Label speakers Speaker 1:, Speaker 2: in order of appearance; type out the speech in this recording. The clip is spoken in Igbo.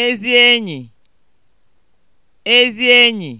Speaker 1: ezi enyi ezi enyi